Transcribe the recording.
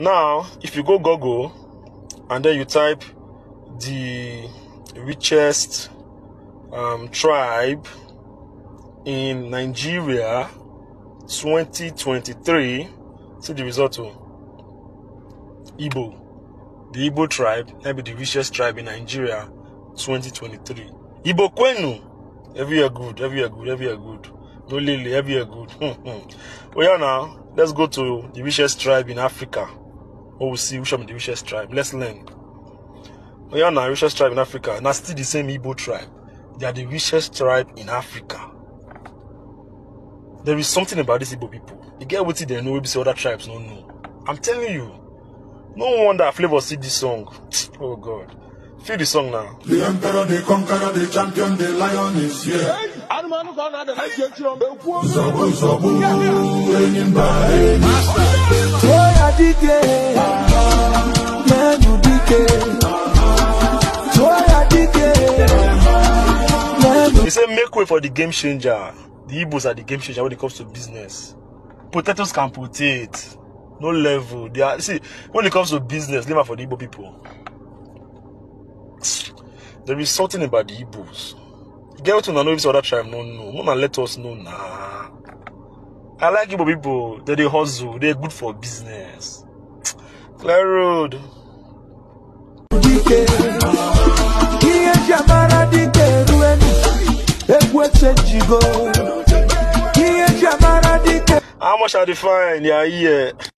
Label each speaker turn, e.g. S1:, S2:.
S1: Now, if you go Google and then you type the richest um, tribe in Nigeria 2023, see the result. Oh. Igbo. The Igbo tribe, maybe the richest tribe in Nigeria 2023. Igbo Kwenu. Oh. Every year good, every year good, every year good. No Lily, every year good. well, oh, now, let's go to the richest tribe in Africa. or we see which one be the richest tribe. Let's learn. We are the richest tribe in Africa, and are still the same Igbo tribe. They are the richest tribe in Africa. There is something about these Igbo people. You get what they know, we see other tribes don't know. I'm telling you. No wonder Flavor see this song. Oh God. Feel the song now. The emperor, the conqueror, the champion, the lion is here. Hey, Anumanu Kona, the next generation. Zobu, Zobu, Enyimba, Enyimba. Oh, yeah, DJ. He said, make way for the game changer. The Igbos are the game changer when it comes to business. Potatoes can put it. No level. They are see when it comes to business, leave for the Igbo people. There is something about the Igbos. Get to know this other tribe, no, no. No man let us know nah. I like Igbo people. They they hustle. They're good for business. Clear road. How much are the fine? Yeah, yeah.